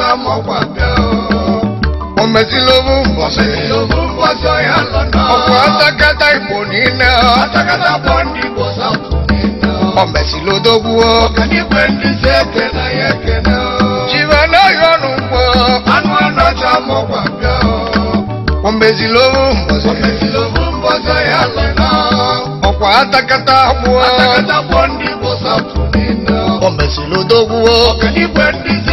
ma mọ pàdé o. Ọmọdé ló mú bọ̀sẹ̀. Ló mú bọ̀sẹ̀ yà lọ́nà. Ọ̀pọ̀ atakata ìbò nínú. Atakata bọ̀ ní bọ̀sà kù nínú. Ọmọdé ló dógún o. Ọ̀kẹ́ ní pẹ̀lú ṣe kẹ̀nà yẹ kẹ̀nà o. Jìbọn náà yọnu pọ̀. Anú ọ̀nà ta mọ pàdé o. Ọmọdé ló mú bọ̀sẹ̀. Ọmọdé ló mú bọ̀sẹ̀ yà lọ́nà. Ọ̀pọ̀ atakata bọ̀. Atakata bọ̀ ní bọ̀sà kù nínú. Ọmọdé ló dógún o. Ọ̀kẹ́ ní pẹ̀lú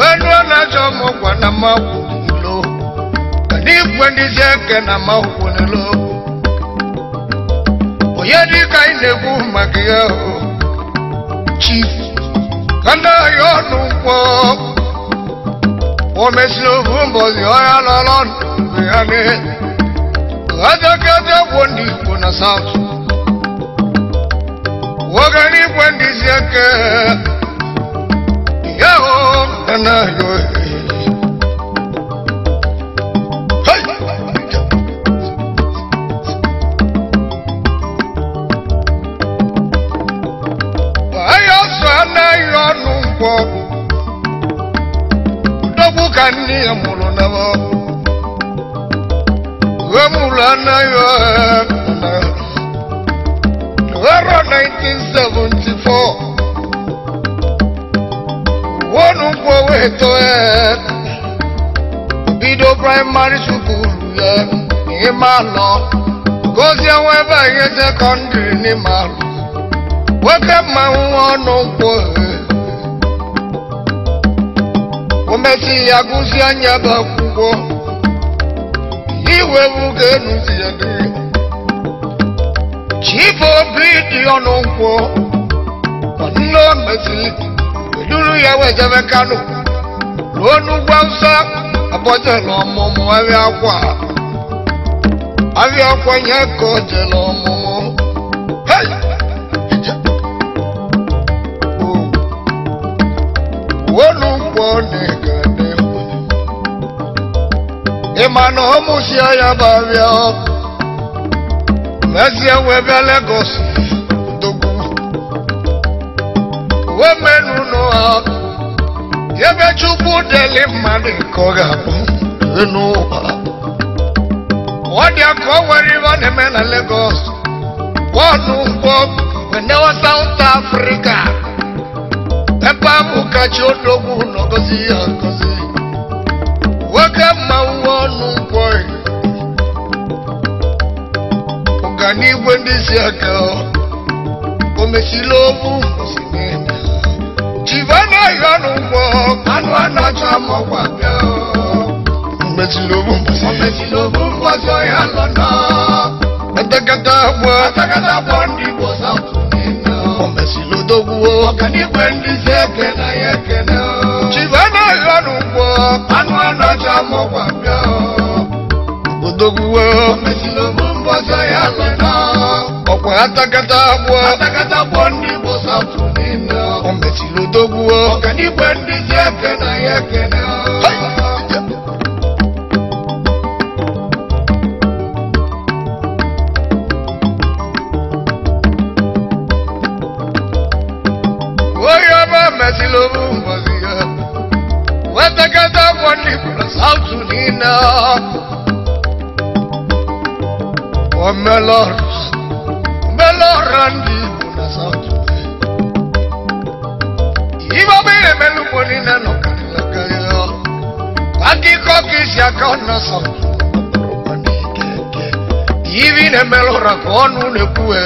wee ruo na achọ m na mmakwulo igwe ndịzi eke na mmakwunelo onye dịka anyị na-ekwu maka ya chief kanaghị ọnụ nkwọ o mesiri ofu mbọzi ọhịa lọrọ ndụ ya n'ihe adọkịta gwụ ndị igbo na saụtụ oge n'igwe ndịzi eke náà yọ èrè. kwọ dọgbu ka nne ya mụrụ na ọ ghọmụrụ anaghị ètò e, Bido primary school yẹ ní máa lọ gòsì ẹ̀wọ̀n ẹ̀bà yẹn secondary ní máa lọ wọ́kẹ́ no ń wọ́n nù pọ̀ ẹ̀. Omesi agụsi anya bụ akwụkwọ iwe bụ ka enu si ede chief obi dị ọnụ nkwọ nne omesi eduru ya wee jebe kanu onugbu awụsa abọjela ọmụmụ ahịa akwa ahịa akwa ya ka o ọmụmụ oh. na ya bụ ahịa ọkụ mezie wee bịa Lagos wee ebe chukwu deli mmadụ nke ọ ga-abụ n'ụwa ọ dị aka ọ nwere ihe ọ na-eme na Lagos bọọlụ ụgbọ wenewa South Africa akpọ atakata akpọ ndị igbo saụtụ o mesịrị odogwuo ọkanikwe ndị si ekene ya ekene chibe anaghị ọnụ ụgbọ anụ anacha mọkwa bịa odogwuo o mesịrị obu mbọsọ ya lụta ọkwa atakata akpọ atakata akpọ ndị igbo saụtụ o mesịrị odogwuo ọkanikwe ndị si ekene ya ekene kana sauti hivi nimelora konu nikuwe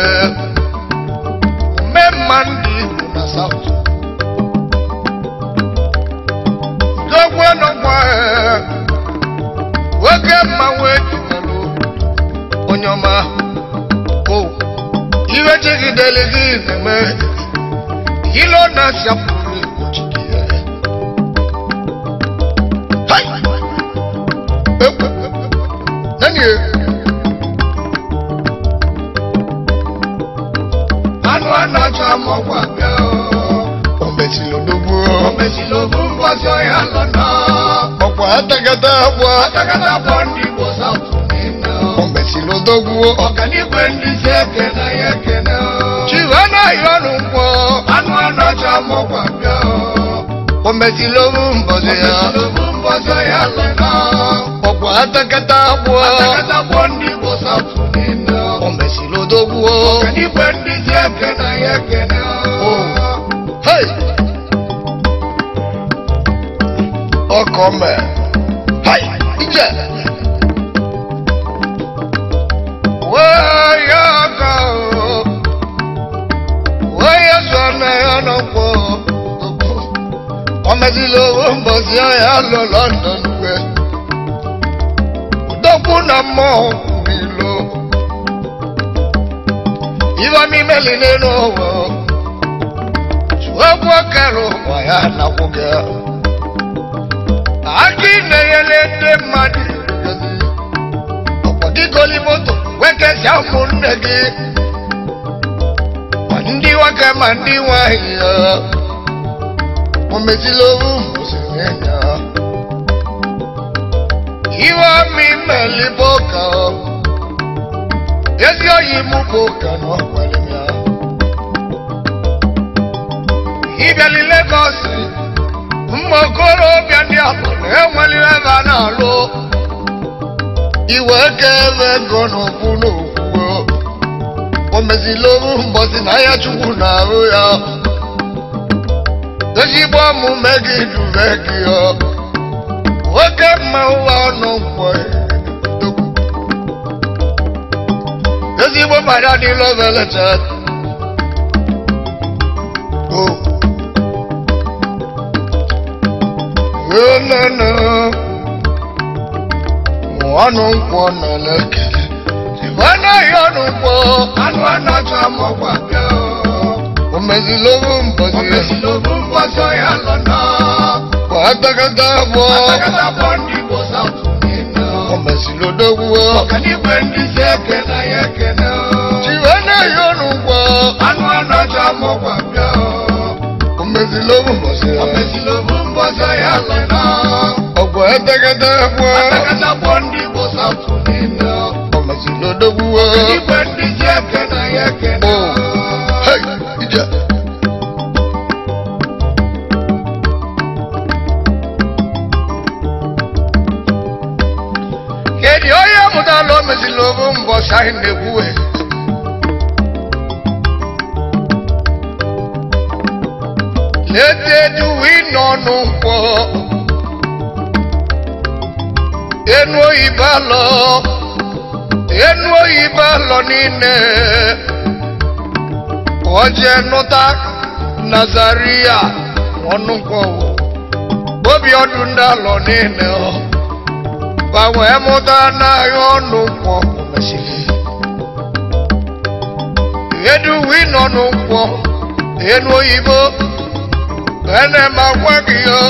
umemandi una sauti dogweno mwe wekema wejumelu onyoma o iwe chikideligi neme ilona siapu Atakatabwa Atakatabwa ndipo sauti neno Kombe silo doguo Okanipe ndize na ye na. Chivana yonu mpo Anu anocha mo kwa myo Kombe silo mbozo ya Kombe silo mbozo ya lena Okwa atakatabwa Atakatabwa ndipo O neno Kombe silo doguo Okanipe ndize kena ye kena Oh Hey Okome oh, jíjẹ. wáyà kà ó wáyà sọnà ẹ̀yọ́nà pọ̀ ọmọdéléwó ń bọ̀ sí ọ̀yà lọ London wẹ̀ dọ́kúnà mọ́ mi lọ ìwọ ní mẹ́lì nínú wọ̀ ṣùgbọ́n kẹ́rù wáyà nàkúkẹ́ akíndéyẹlé dé mmadụ ọkpọdịgoli moto wekesi afọ nne gị ma ndị nwoke ma ndị nwanyị ya omezila owu mụsịrị ya iwe ọmị mmelibe ụka ezi oyi mụ bụ na ọkwere ya ịbịali legọsi mma okorobịa ndị agbata enwelire ebe a na-alụ iwe ka ebe ego n'okwu n'okwu o mezila oru mbọsi na ahịa chukwu na-arụ ya ezigbo omume gị dure gị nwoke mma ụwa ọnụ nkwọ ezigbo mara dị lovelete o lelele ọnụ nkwọ nọ n'ekele dibana ya ọnụ nkwọ anụ anacha mọkwa bịa omezilobu mbọzi omezilobu mbọzi ya nọ na agbagadá bọ agbagadá bọ ndị igbo saụtụ na-eme omezilodowu ọkanigwe ndị si ekele ya ekele dibana ya ọnụ nkwọ anụ anacha kata ya lena ọgwọ etegede gbuo atakata gbuo ndị bụ saụtụ niile ọmazinodo gbuo igwe ndị ji eke na ya ekena kedu onye mụtala omezila obu mbọchị ahụ na-ekwuwe alọ enu oyibo alọ niile ọ nụta nazaria ọnụ nkwọwụ obi ọdụ ndị alọ niile gbanwe mụta n'ahịa ọnụ nkwọ edu wino n'ụkwọ enu oyibo ene ma gị yo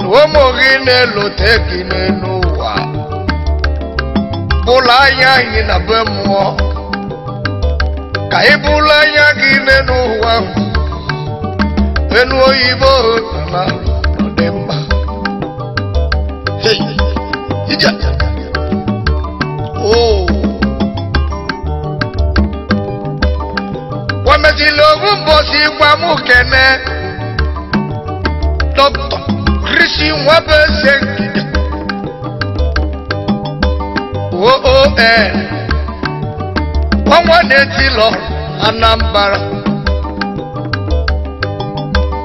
na ụmụ gị na-elote wa bula ya yi na be muo ka i bula ya gi n'enu ụwa enu hey ija oo wamezili owu mbosi gwa mụ kene dọkịta krisi nwa bụ oon ọnwa na-eti lọ Anambra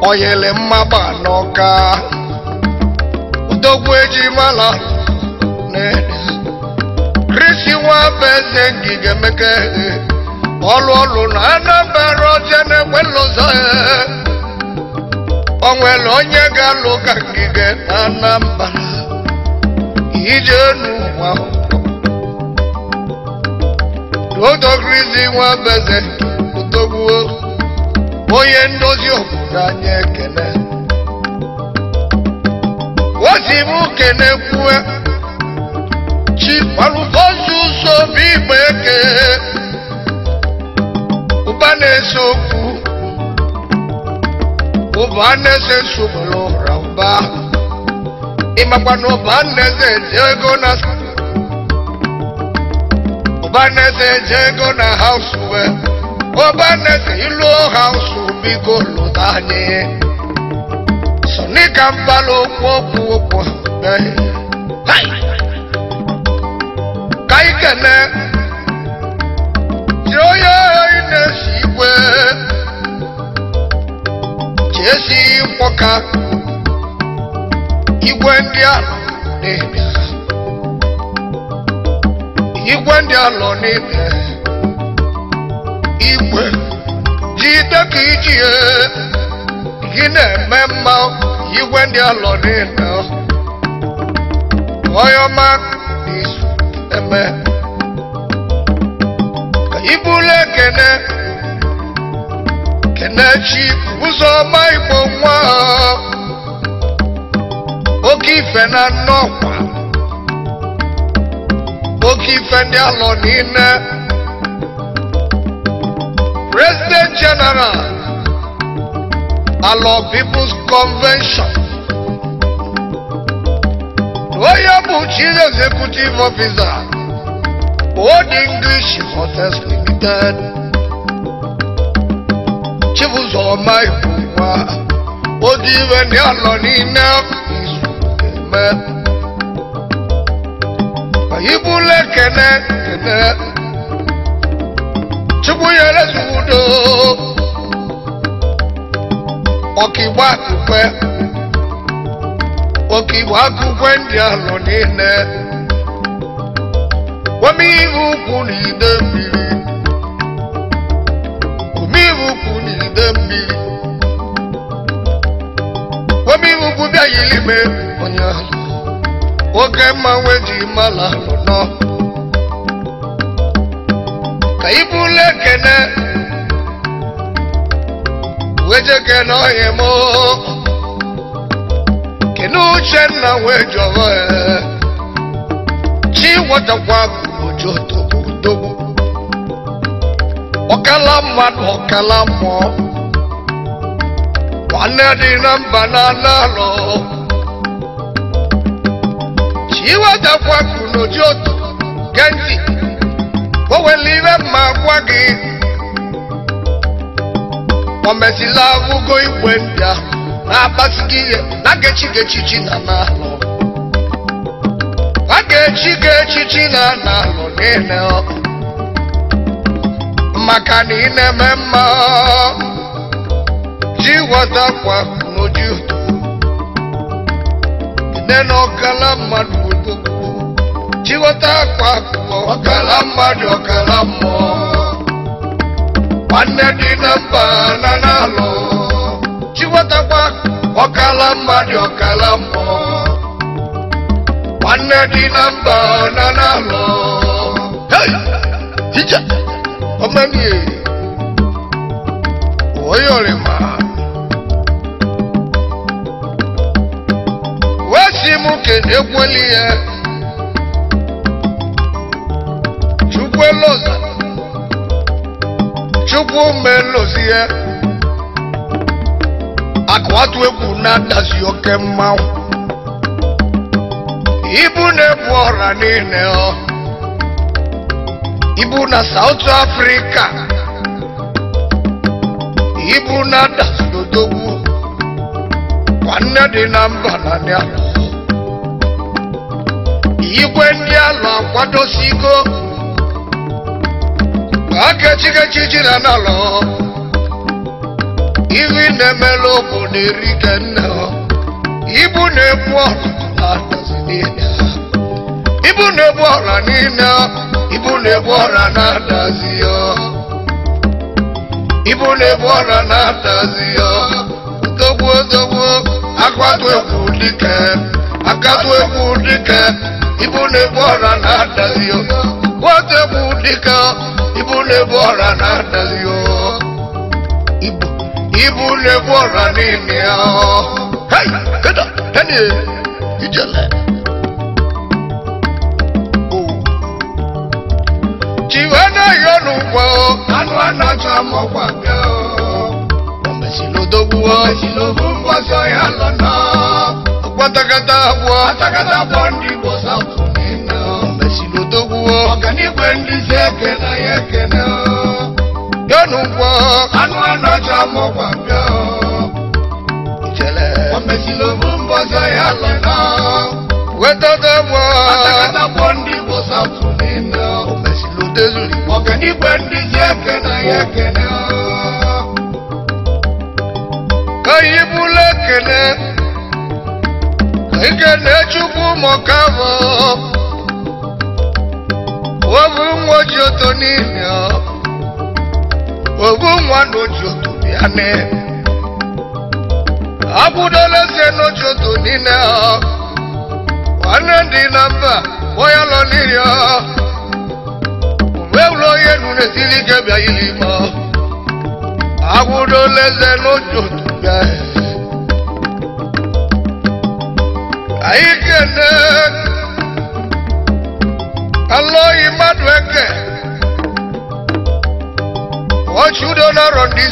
oyele mmagba n'ọka odogwu ejimala krisi nwabeze ngige meke ọlụ ọlụ na Anambra ọzọ na-egbe lụzọ onwere onye ga-alụ ka ngige na Anambra ije n'ụwa odogrizi nwa beze togbuo onye ndozi obodo anyị ekele ozi m kene kue chi alụbozi ụzọ bụ igbe eke ụba na-ese okwu ụba na-ese nsogbu ụra ụba ịmakwa na ụba na-eze ego obaneze jego na hausue obaneze ilu hausu bigo lotanye sonika mbala okwu okwu okwu ka ikene ji onye oyi na-esi igwe ji esi igwe ndị alọ n'ibe igwe jide ka iji gị na-eme mma igwe ndị alọ niile ọyọma n'izu eme ka ibulu kene, kenechi ụzọ ọma igbo nwa oke ife na nnọkwa Okita ndị alọ President General Alọ People's Convention onye bụ Chief Executive Officer Old English Hotels Limited Chibuzoma Ikwuwa odi iwe ndị alọ niile izu eme ibule kene kene chukwu nyere zudo ọkigba akụkwe ọkigba akụkwe ndị anọ niile omeihe ukwu na ide mmiri omeihe ukwu na ide oge mmanwụ ji mala nọ ka na ekene weje kene uche nna kene ji wee jọrọ chi wọtakwa ojo togbu togbu ọkala mmadụ ọkala mmụọ nwanne dị na mba na anụ alọ iwetakwa n'oji otu gee o nwere ire mma gwa gị o mesịla agụgo igwe ndị ahụ na-akpasi gị ihe na gechi chi na n'alụ a ga-echi gị echichi na n'alụ niile maka na ị na-eme mma ji ghọtakwa n'oji neno ọkala mmadụ odogwu chịghọta akwa akụkọ ọkala mmadụ ọkala mmụọ nwanne dị na mba na n'alụ chịghọtakwa ọkala mmadụ ọkala mmụọ nwanne dị na mba na n'alụ ọmọnìyẹ oyè ọrẹ máa. Ndị nwoke ka egwueli ya chukwueloza chukwu melozi ya atụ egwu na-adazi oke mmanwụ ibu na-ebu ọra niile ọ ibu na South afrịka ibu na-adazi odogwu nne dị na mba na igwe ndị ala akwadosigo akechikechi jiri n'ala ihu na-emela ụbụ na-erike nne ibu na-ebu ibu na-ebu ọra niile ibu na-ebu ọra na-adazi ya ibu na-ebu ọra na-adazi ya dogbuo dogbuo akatụ egwu dike akatụ egwu dike ibune bora na dazio wote budika ibune bora na dazio ibu ibune bora ni yao hey kada hani ijele jiwana yonu kwao anu anachamo kwa kwao ombesi lodogu wao ombesi lodogu mbwaso lona Watakata bwa Watakata bwa ndipo sautu nino Mesilo tokuwa Wakani kwendi zeke na yeke na Yonu bwa Anu anocha mo Mchele Wamesilo mumbo za yale na Wetata Watakata bwa ndipo sautu nino Mesilo tezuli Wakani kwendi zeke na yeke na ikene chukwu mọkavọ obu nwa oji oto n'ihi obu nwa na oji bịa ne akwụdola eze na oji oto niile nwanne ndị na mba onye lọ n'iri mgbe ụlọ onye nụrụ esiri ike bịa ili ma akwụdola eze na oji oto bịa Aiketek Aloyi mmadụ eke Ochudo n'ọrụ ndị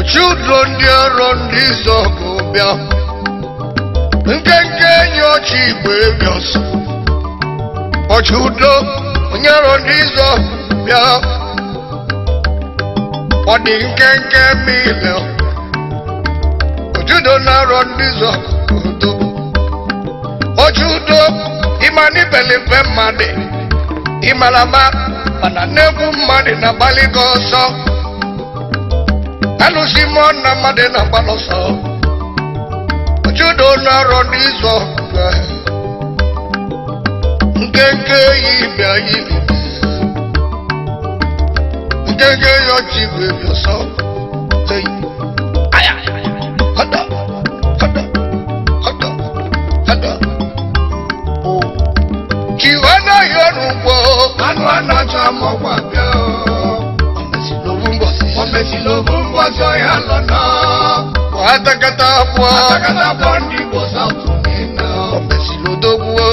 Ochudo ndị ọrụ ndị izoku bịa Nkenke enyi ochi igwe Ochudo onye ọrụ ndị izoku bịa nkenke ma ile Ochudo n'ọrụ ndị udobu oji udo ịma na mmadụ ịmara ma mana n'egwu mmadụ na-agbalị gị ọsọ alụsi mmụọ na mmadụ na-agbalị ọsọ oji udo ọrụ n'izu nkenke yi bịa yi nkenke yi ọjị igwe bịa ọsọ Aya, aya, wo. Manu adájọ́ mọ̀ wá bẹ́ o. Ọ̀mẹ̀sì ló mú bọ̀ sí. Ọ̀mẹ̀sì ló mú bọ̀ sí ọ̀yà lọ́nà. Wàá tẹ́kẹ́tà pọ̀. o.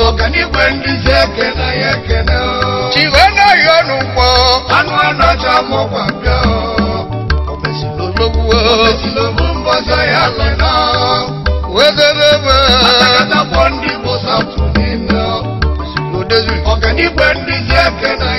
Ọ̀kàní pé ní iṣẹ́ kẹ́nà yẹ kẹ́nà o. Tìwé náà yọnu pọ̀. o. Ọ̀mẹ̀sì ló o. Ọ̀mẹ̀sì ló mú bọ̀ sí ọ̀yà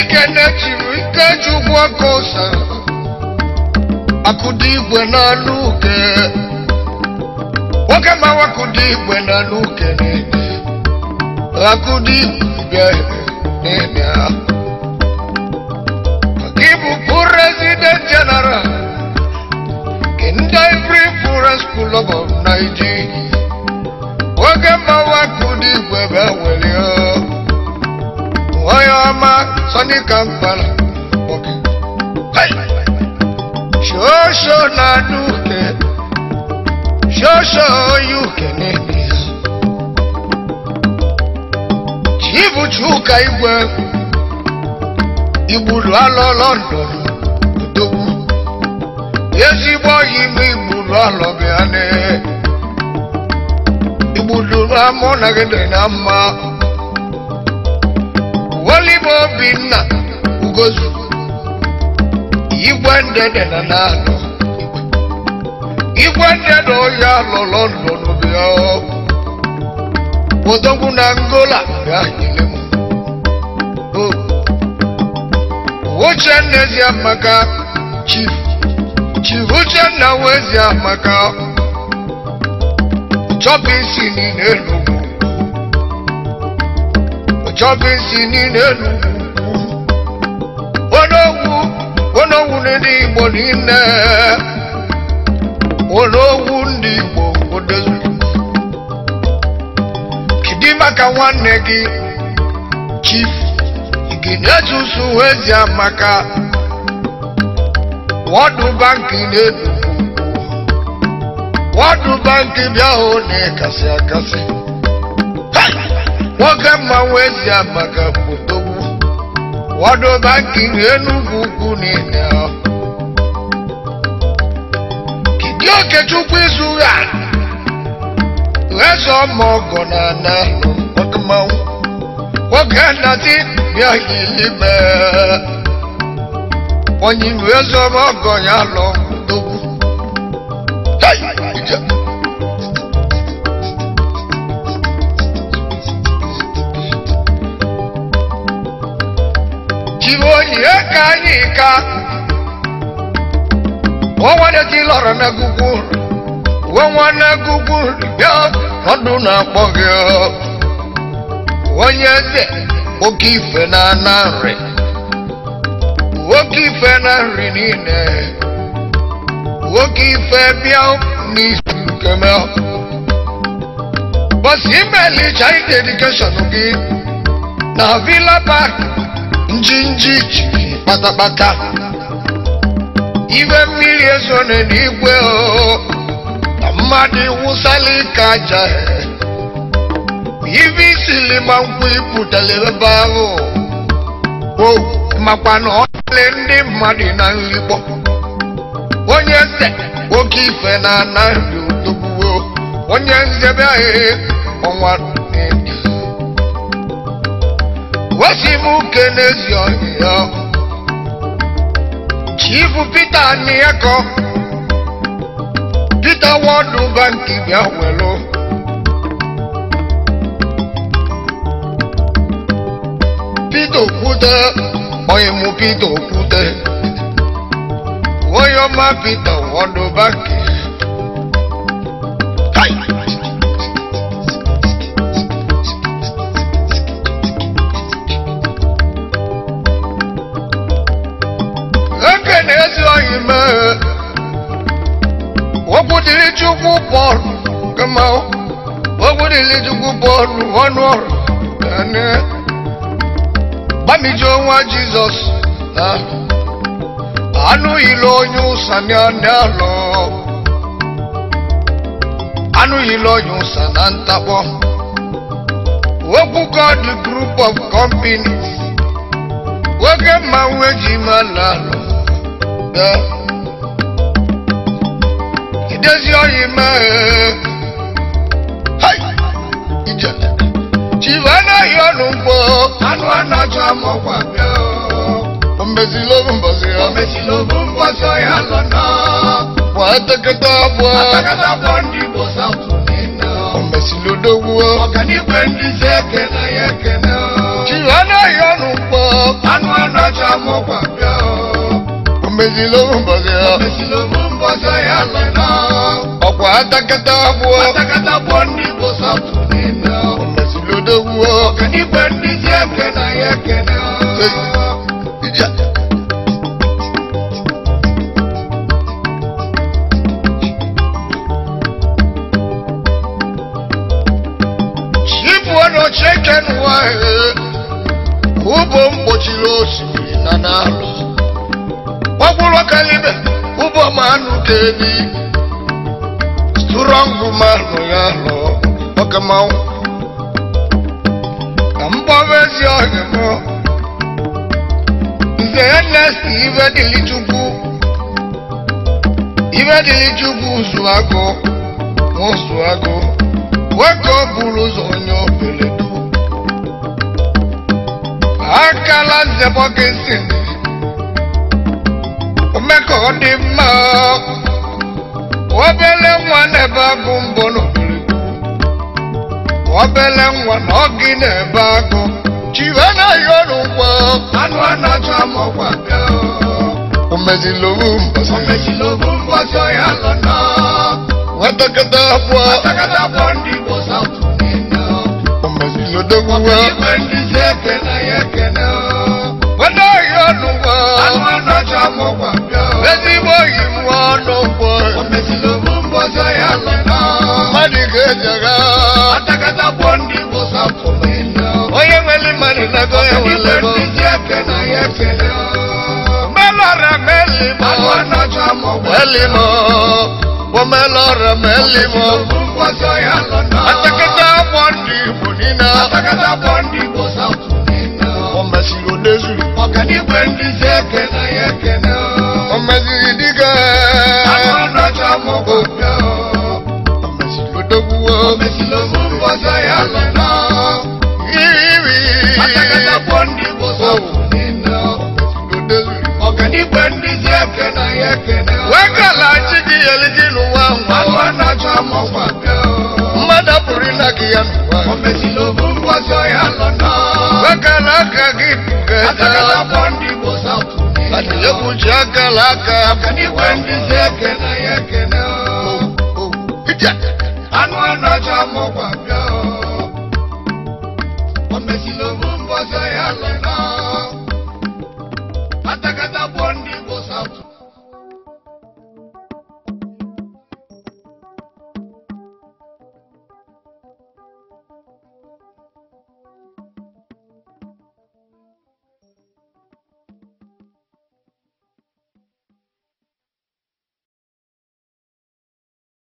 ikene-echiri ikendechibikechugwa kosa akudigwe na luke wakama wakudigwe na luke nene akudigwe nene akibu president general kindai free forest kulobo naijigi wakama wakudigwe bewelio oyo ama Sunday Kampala Bọ̀kì. Ṣoṣo na dúkẹ́, you yúkẹ́ ní ìyá. Chibu Chuka Igwe, ìgbùlù alọ London, Odogwu. Ezigbo yime ìgbùlù alọ bịa n'e. Ìgbùlù amọ nagide na mma olive obinna ugozu igwe ndede na na-anọ igwe ndede onye anọ london bịa odogwu na angola bịa nyere m Uchenna Amaka Chief Chief Uchenna Wezi Amaka Chopping e Sini Enugu chọgịzi niile n'ugwu onogwu onogwu ndị igbo niile onogwu ndị igbo odozuru kidi maka nwanne gị chief iginezuzu ezi amaka wọdụ bankị na-edugwu wọdụ bankị bịa hụ na ịkasị nwoke mmanwụ esi amaka kpotogbu wọdụ banki enugwu ukwu niile kidi okechukwu izu ha ghesa ọma ọgọ na ana nwoke mmanwụ nwoke nnazi bịa ilime onye iwe zọrọ ọgọ ya lọ kpotogbu jioni ekanika onwaneki lọrọ na gugu nwanwanne gugu bịa ọdụ na-akpọ gị onye eze oke na na nri oke ife na nri niile oke ife bịa n'isi nkeme bọsi chai ide edikeshọn na villa park njinji kpatakpata ibe mmiri eso na n'igwe na mmadụ wụsala ike aja ibe isili ma nkwụ ipụtara ebe ahụ makwa na ọ ọlị ndị mmadụ na nrigbo onye se oke ife na anaghị ụtụgbuo onye nzebe ahụ ọnwa Kasimu Kenneth Oyo Chief Peter Nieko Peter Wadu Banki Biawelo Peter Kute Oyemu Peter Kute Oyoma Peter Wadu Banki bọọlụ kama ogun ilé jùkú bọọlụ ọnù ọrọ lẹni bámijọ wọn jesus àánú ìlò oyún sani àní àlọ àánú ìlò oyún sani à ń tapọ ogun god group of companies oge mmanwu eji ma lálọ. Yeah desi oyima hai ijele chivana yonu nkwo anụ anacha amọkwa bịa ombezi lobu mbosi ya ombezi lobu mbosi ya lọna wa atakata abụọ atakata abụọ ndị igbo sapụ nina ombezi lodogwuo ọkanikwe ndị si ekene ya ekene chivana yonu anu anụ anacha amọkwa bịa ombezi lobu mbosi ya ombezi lobu mmoja ya meno ọkwa atakata abụọ atakata abụọ ndị bụ sọtụ nino omesilodowo ọkanife ndị ji eke na ya ekene chibuo na ocheken wahe ugbo mgbochiri osimiri na n'alụ ọgwụrụ ọkanibe Ụbọ manụ tedi strọngụ manụ ya nọ ọka manwụ ka mgbawa ezi ọhịa mọ nze ya nesi iwe dịlị chukwu iwe dịlị chukwu ụzụ agụ ụzụ agụ nwoke ọ bụrụ ụzọ onye obeledu akala nzebọ gị nsị mgbe ka ọ dị mma obele nwa na-ebe agụ mbọ n'obodo obele nwa na ọ gị na-ebe agụ chiwe na ya ọrụ ngwa anụ a na-achọ amọkwa bịa omezilobu mbọsị omezilobu mbọsị ọya lọ na nwatakịta abụọ nwatakịta abụọ ndị igbo saụtụ na-enye omezilodogwu wa ọkụ ndị si ekene ya ekene wede ọya ọrụ ngwa anụ a na-achọ ezigbo iwu ọnụ kwụ mbọchọ ya mmadụ ga-ejega onye nwere mmadụ nago ya welego melora melimo melimo bụ melora melimo atakata ọgbọ ndị igbo niile o mesiri o dezuru ọganiwe ndị si ekene ya ekene ọmọsìdíkà agbọdọdọ mọ kò dọ ọmọsìlódógúwọ ọmọsìlógúnbọsọ yà lọnà yìí akẹkẹtà pọndì bọsọ nínà ọkàdìgbẹ ndíjẹ kẹnà yẹ kẹnà. wẹ́kàlà chidi yeliji nù wá wá. agbọdọdọ mọ kò dọ mmadụ pụrụ ịnagị ya n'ụwa. ọmọsìlógúnbọsọ yà lọnà. wẹ́kàlà kàgị kẹta. akẹkẹtà pọndì bọsọ. Atile kuchaka laka Kani wendi zeke na yeke na Anu anacha mokwa